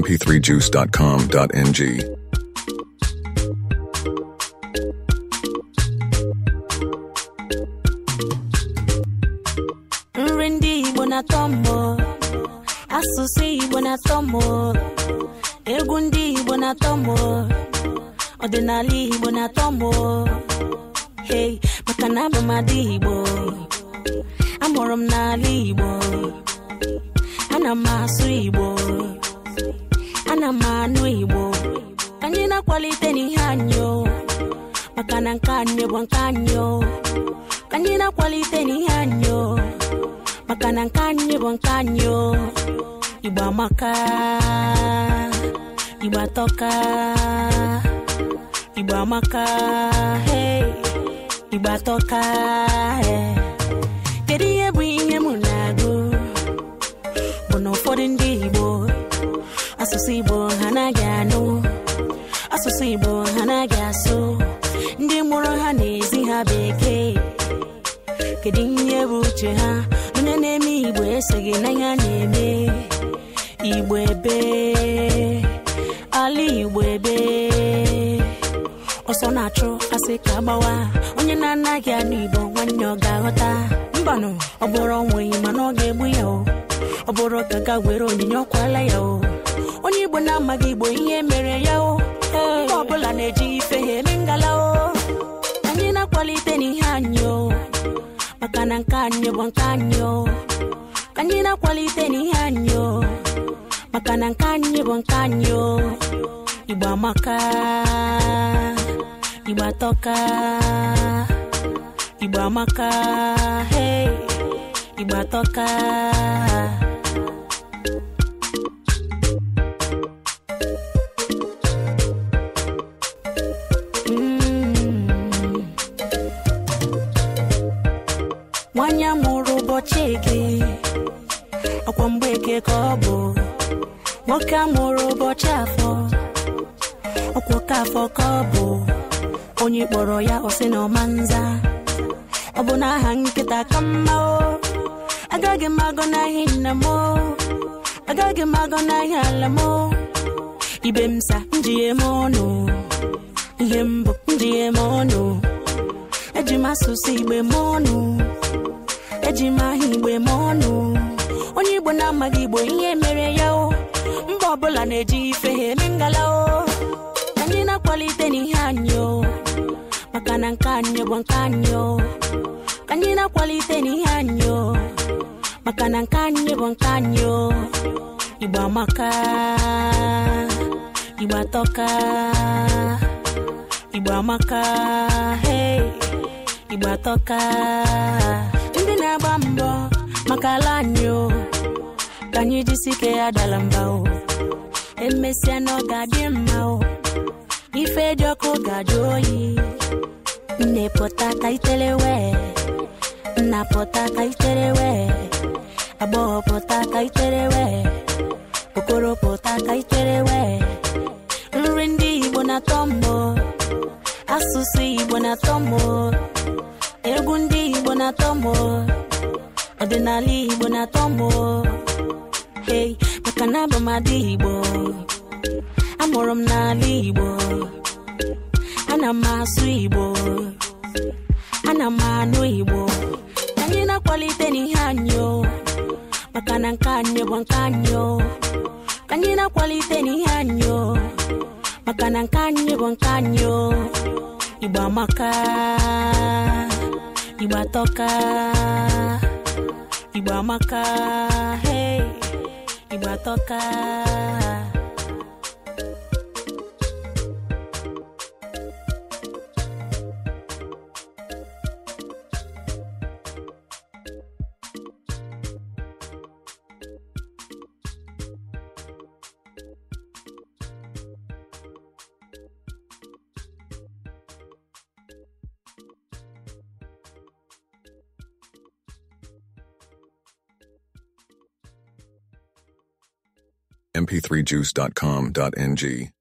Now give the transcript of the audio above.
mp3juice.com.ng. Nri ndị Igbo na-atọ m asụsụ Igbo na-atọ m egwu ndị Igbo na-atọ m ọdịnala Igbo na-atọ m hey maka na abụ Igbo amụrụ m n'ala Igbo ana m asụ Igbo na anụ na-akwalite n'ihe anyị maka na nke anyị bụ nke anyị anyị na-akwalite n'ihe anyị maka na nke anyị bụ nke asụsụ igbo ha naghị asụ ndị mụrụ ha na-ezi ha bekee kedu ihe bụ uche ha onye na-eme igbo esoghị n'ihe a na-eme igbo ebe ala igbo ebe ọsọ na-achụ asị ka gbawa onye na-anaghị anụ igbo nwanne ọ ga-aghọta mbanụ ọ bụrụ onweghị mana ọ ga-egbu ya ọ bụrụ ka ga were onyinye ọkwala ya onye igbo na-amaghị igbo ihe mere ya maka na nke anyị bụ nke anyị ka anyị na-akwalite n'ihe anyị maka na nke anyị bụ nke anyị igbo amaka igbo atọka igbo amaka igbo atọka nwanyị mụrụ ụbọchị gị ọkwa eke ka ọ bụ nwoke amụrụ ụbọchị afọ ọkwa afọ ka ọ bụ onye kpọrọ ya ọsị na ọmanza ọ bụ na aha nkịta ka mma o agaghị m agọ nna m o agaghị m agọ ala m o ibe m sa m ọnụ ihe mbụ njighe m ọnụ eji m asụsụ igbe m ọnụ eji m aha igbo eme ọnụ onye igbo na-amaghị igbo ihe mere ya o mba ọbụla na-eji ife ha eme ngala o anyị na-akwalite n'ihe anyị o maka na nke anyị bụ nke anyị o anyị na-akwalite n'ihe anyị o maka na nke anyị bụ nke anyị o igbo amaka igbo atọka igbo amaka igbo atọka ka anyị jisi ike ya dara mba o emesịa na ọ ga-adị mma o ife dị ọkụ ga-ajụ oyi nne pụta ka itere wee nna pụta ka itere wee agbọghọ ka itere wee okoro pụta ka itere wee nri ndị igbo na-atọ mbọ asụsụ igbo na-atọ mbọ egwu ndị igbo na-atọ mbọ ọdịnala igbo na-atọ mbọ hey maka na abụ m ada igbo amụrụ m n'ala igbo ana m asụ igbo ana m anụ igbo anyị na-akwalite n'ihe anyị maka na nke anyị bụ nke anyị anyị na-akwalite n'ihe anyị maka na nke anyị bụ nke anyị igbo amaka igbo atọka igbo amaka hey ịgbatọka mp3juice.com.ng